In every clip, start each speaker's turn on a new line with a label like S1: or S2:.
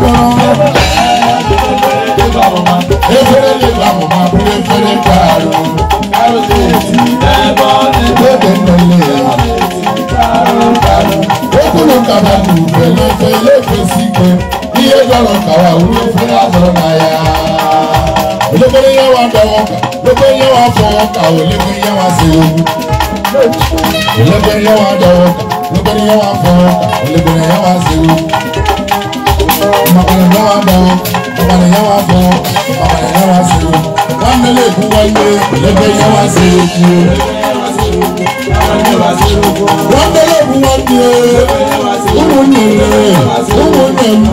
S1: gbọ́rọ̀. Efere lè bá mo máa bú efere kàrò. Kárọ̀tì ètí ẹ̀bọ̀ ní bèbè pẹ̀lẹ́. Okùnrin kàbà kù pẹ̀lú ẹ̀fẹ̀ ilé ìfẹ̀sí gbẹ. Iye gbọ́rọ̀ kàwá wúlò fún bàbá rẹ̀ náà wà bọ̀ bàbá rẹ̀ náà wà bọ̀ bàbá rẹ̀ náà wà sí o wọ́n mẹ́lẹ̀ èkó wáyé lẹ́gbẹ́ yẹn wá sí èkó. wọ́n mẹ́lẹ̀ èkó wáyé owó nílé owó nílé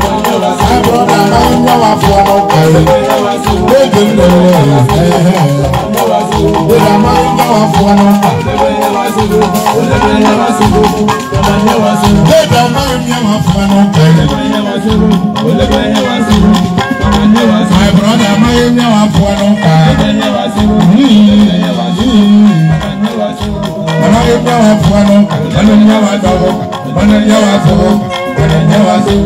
S1: àbúrò bàbá yẹn náà wà fún ọmọ kẹrẹ lóde nílé ẹ̀hẹ́ lóde àmọ́ yẹn náà wà fún ọmọ kẹrẹ lóde àmọ́ yẹn náà wà fún ọmọ kẹrẹ. ọlọ́yẹ̀gbẹ́ wa fún wa lọ ọlọ́yẹ̀ wa dọ̀wọ́ ọlọ́yẹ̀ wa fọwọ́ ọlọ́yẹ̀ wa sọ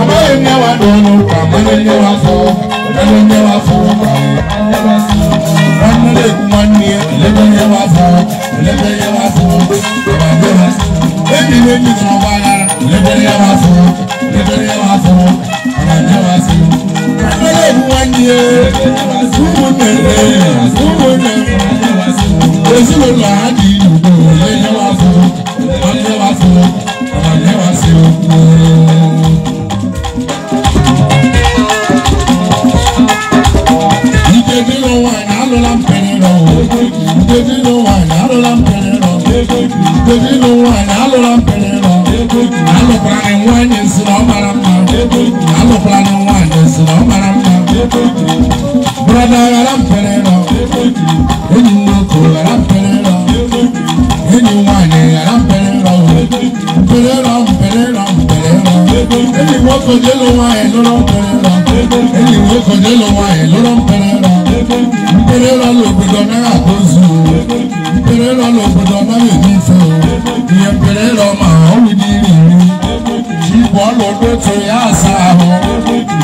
S1: ọlọ́yẹ̀ wa dọ̀wọ́ ọlọ́yẹ̀ wa fọwọ́ ọlọ́yẹ̀ wa fọwọ́ ọlọ́yẹ̀ wa sọ wọn nílé ìgbìmọ̀ ní ọlọ́yẹ̀ wa fọwọ́ ọlọ́yẹ̀ wa fọwọ́ ọlọ́yẹ̀ wa sọ ebi méjì tí wọn bá yára ọlọ́yẹ̀ wa fọwọ́ ọlọ́yẹ̀ wa sọ. ayé kúkú nẹ̀rẹ̀ kúkú nẹ̀rẹ̀ èsì ló lọ́ọ́ àdìyí. kọjá lọ́wọ́ ẹ̀ lọ́rọ́ ń pẹ̀rẹ̀ rà ẹni ìwé kọjá lọ́wọ́ ẹ̀ lọ́rọ́ ń pẹ̀rẹ̀ rà mpẹ̀rẹ̀ rà ló gbọdọ̀ náírà tó zù mpẹ̀rẹ̀ rà ló gbọdọ̀ náírà tó zù ìyẹn mpẹ̀rẹ̀ rà ọmọ àwọn wíìdì rì rì ìbọn lọ́dọ̀ tó yà sá àwọn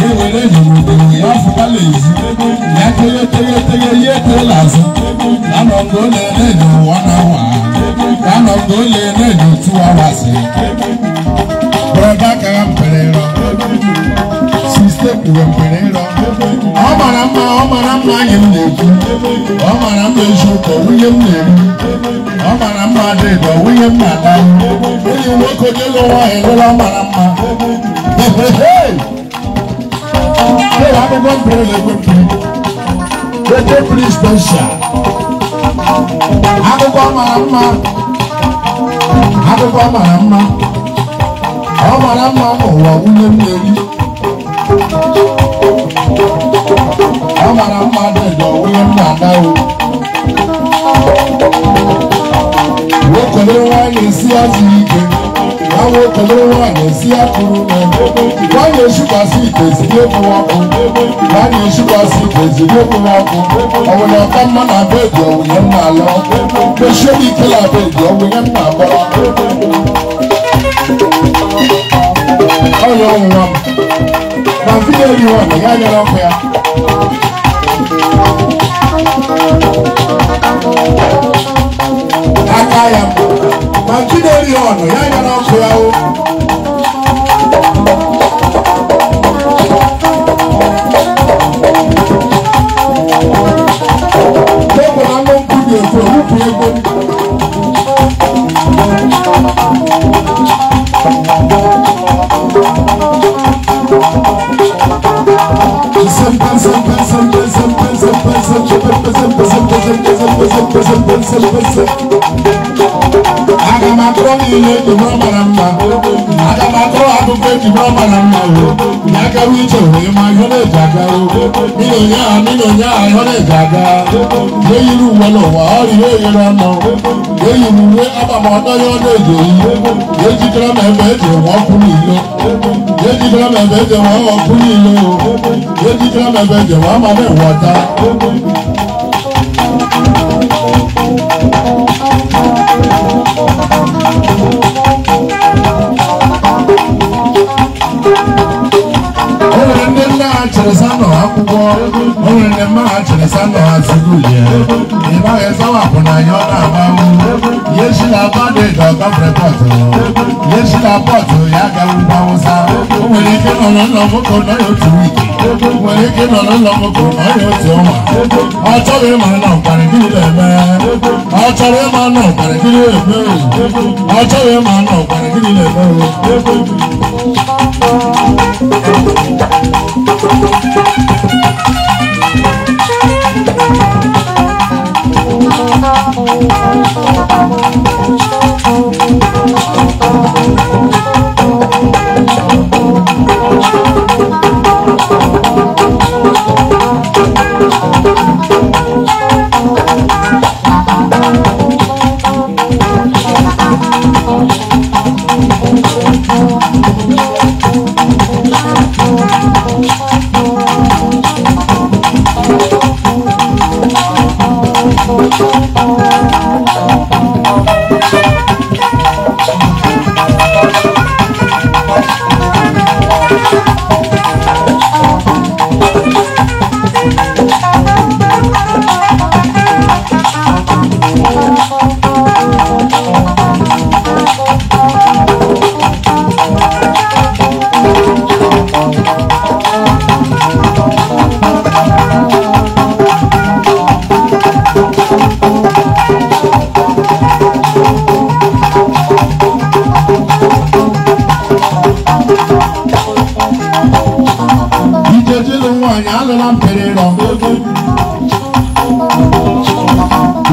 S1: ìwéwèlé ìdìbò ìyá fúnpálẹ̀ yìí ìyá tẹ́lẹ̀tẹ́lẹ̀ yé tẹ́lẹ̀ àzọ lánàá gbọ́lẹ̀ ẹ̀ lẹ́yìn wọn náà wà lánàá gbọ́lẹ̀ ẹ̀ lẹ́yìn tí wọ́n wá sí. bọ̀dá ọ mara mma ọ mara mma anyị m na-ekwu ọ mara mma eziokwu nwunye m na ọ mara mma adịdọ nwunye m na-ata onye nwoke onye lụ nwaanyị lụla ọ mara mma ụlọ akwụkwọ mpere na akwụkwọ mara mma akwụkwọ ọ mara mma amara mmadụ ga onye nna na o wekọlere nwaanyị si azụ ike na wekọlere nwaanyị si akụrụ na nwaanyị eshikwasị ite ezigbo ekpuru ọkụ nwaanyị eshikwasị ite ezigbo ekpuru ọkụ ọwụna ọka mma na be dị onwunye nna ala mechie m ike na be dị onwunye nna agbara ọya ọnwụwa m hiyo diwani yaja mambo ya aka ya makide liyono aga m akụrụ niile ejibụrụ mara mma aga m akụrụ akụkọ ejibụrụ mara mma na agawa ije wee ma ihe na-eji aga mmiri onye ahụ mmiri onye ahụ ihe na-eji aga eyiri uwe n'ụwa ọrịa eyere ọnụ eyiri uwe agbamaọtọ ya ọ na-eji eyi ejikere ma ebe eji enwe ọkụ n'ilo Yéji kílọ̀ mẹ́fẹ́ jẹ̀ wá ọkùn ní ìlú o. Yéji kílọ̀ mẹ́fẹ́ jẹ̀ wá máa bẹ̀ wọ̀ta. Ọ̀rẹ́ ndị nna ha chere sanọ akwụkwọ, ọ̀rẹ́ ndị mma ha chere sanọ yesila bọọdụ ịdọkọ prepọtụ yesila pọtụ ya ga-ewugba awụsa o nwere ike nọ n'ụlọ nwoke nọ ya otu wiki nwere ike nọ n'ụlọ nwoke nọ ya otu ọnwa ọ chọrọ ịma na ọkparị gịnị na-eme ọ chọrọ ịma na ọkparị gịnị na-eme ọ chọrọ ịma na ọkparị gịnị na-eme Thank you. nyalala mperero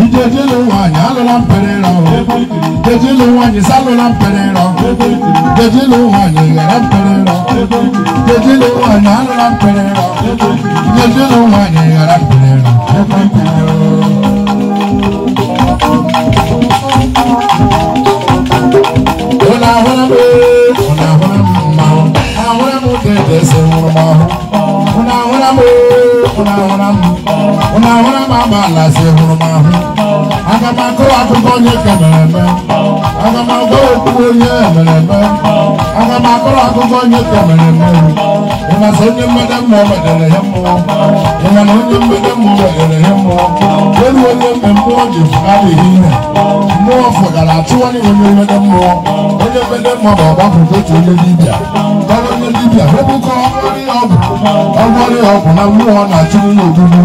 S1: ijeje lowa nyalala mperero jeje lowa nyisalala mperero jeje lowa nyigara mperero na wa ba ba la se huruma hu aga m akọ akụkọ onye ka na-eme aga m agwa okwu onye mere eme aga m akọrọ akụkọ onye ka mere eme ịmasị onye mmede mmụọ wedere ihe mmụọ ịmana onye mmede mmụọ wedere ihe mmụọ elu onye mgbe mmụọ ji adịghị ihe mmụọ fụgara achụwanye onye mmede mmụọ onye mmede mmụọ bụ ọgbapụta otu onye dibịa gbara onye dibịa webụkọ ọgwụ ọrịa ọgwụ na mmụọ na-achụ onye ogbugbu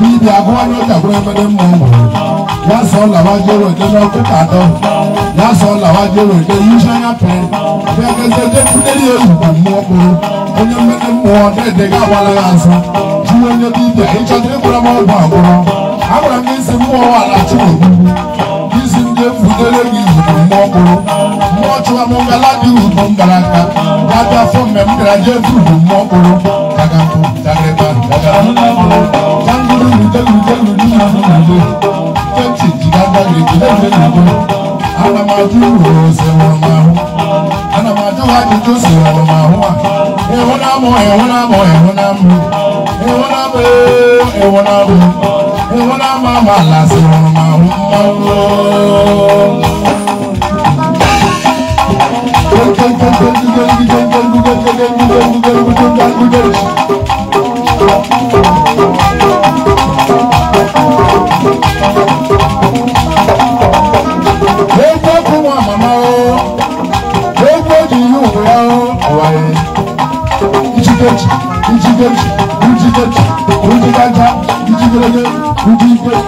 S1: dibịa agụwanye ọja gwụrụ emede mmụọ nwere That's lásán làwa jẹ́rò ìdẹ́nà kúkà dán lásán làwa jẹ́rò ìdẹ́ yíṣáyà pẹ́ fẹ́kẹ́sẹ́ dẹ́kúndé ní olùkọ́ mú ọkùnrin onye mmeke mmụọ ọdẹ́dẹ́ gáwala ya nsọ ju onye dibịa ịchọta ịkwụrụ m ọgwụ agwụrọ agwara m isi mmụọ ala chukwu isi ndị efutere gị izugbo mmụọ ọkụrụ mmụọ chụwa m ngala dị ugwu mbara aka ga-abịa fọ mmemme gara jee furu mmụọ ọkụrụ àbẹ́fẹ́ nàdó anamadu rọ̀ọ̀sẹ̀ wọn máa hù anamadu àdìjọ́ sí wọn máa hù à ẹ̀wọ̀n náà mọ̀ ẹ̀wọ̀n náà mọ̀ ẹ̀wọ̀n náà mọ̀ ẹ̀wọ̀n náà mọ̀ ẹ̀wọ̀n náà mọ̀ ẹ̀wọ̀n náà mọ̀ àmọ̀ àlàsẹ̀ wọn máa hù máa Thank you. Gülcük, Gülcük, Gülcük Alta, Gülcük Gülcük, Gülcük Gülcük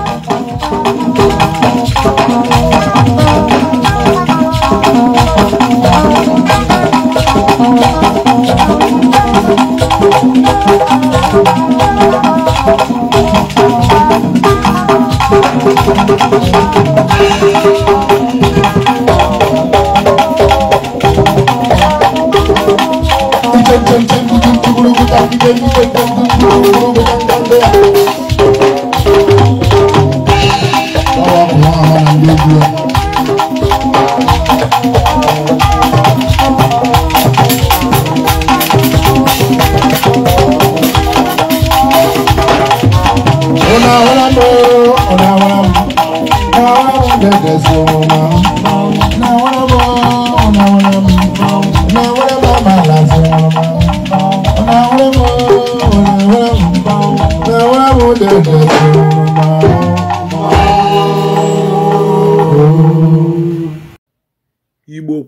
S1: igbo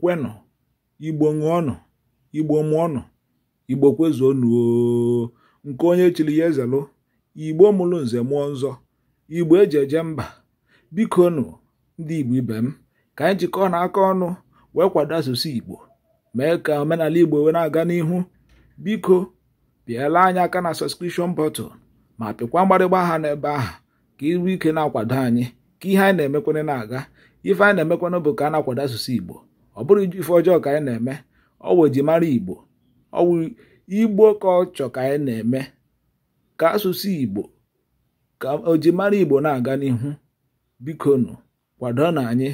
S2: kwenụ igbo ṅụọnụ igbo mụọnụ igbo kwezuonụ nke onye chiri ya ezelụ igbo mụrụ nze mụọ nzọ igbo eji eje mba biko nụ ndị igbo ibe m ka anyị jikọọ na aka ọnụ wee kwado asụsụ igbo mee ka omenala Igbo wee na-aga n'ihu biko bịala anyị aka na sọskrishọn bọtụl ma pịkwa mgbarịgba aha n'ebe ahụ ka iru ike na-akwado anyị ka ihe anyị na-emekwana na-aga ife anyị na-emekwana bụ ka a na-akwado asụsụ Igbo ọ bụrụ ife ọjọọ ka anyị na-eme ọ wụ mara Igbo ọ Igbo ka ọ chọ ka anyị na-eme ka asụsụ Igbo ka o mara Igbo na-aga n'ihu biko bikonu kwado na anyị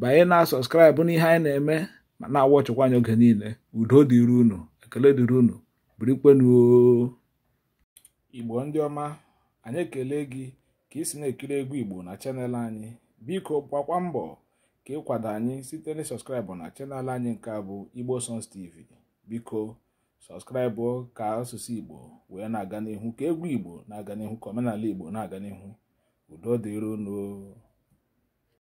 S2: banye na sọskraịbụ n'ihe anyị na-eme ma na-awa ọchịkwa oge niile udo dịrị unu ekele dịrị unu birikwenuo igbo ndị ọma anyị ekele gị ka ị na-ekiri egwu igbo na chanel anyị biko gbakwa mbọ ka ịkwado anyị site na sọskraịbụ na chanel anyị nke bụ igbo Sons tv biko sọskraịbụ ka asụsụ igbo wee na-aga n'ihu ka egwu igbo na-aga n'ihu ka omenala igbo na-aga n'ihu udo dịrị unu